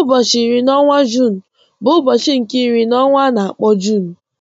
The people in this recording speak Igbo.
Ụbọchị iri n'ọnwa Juun bụ ụbọchị nke iri n'ọnwa a na-akpọ Juun.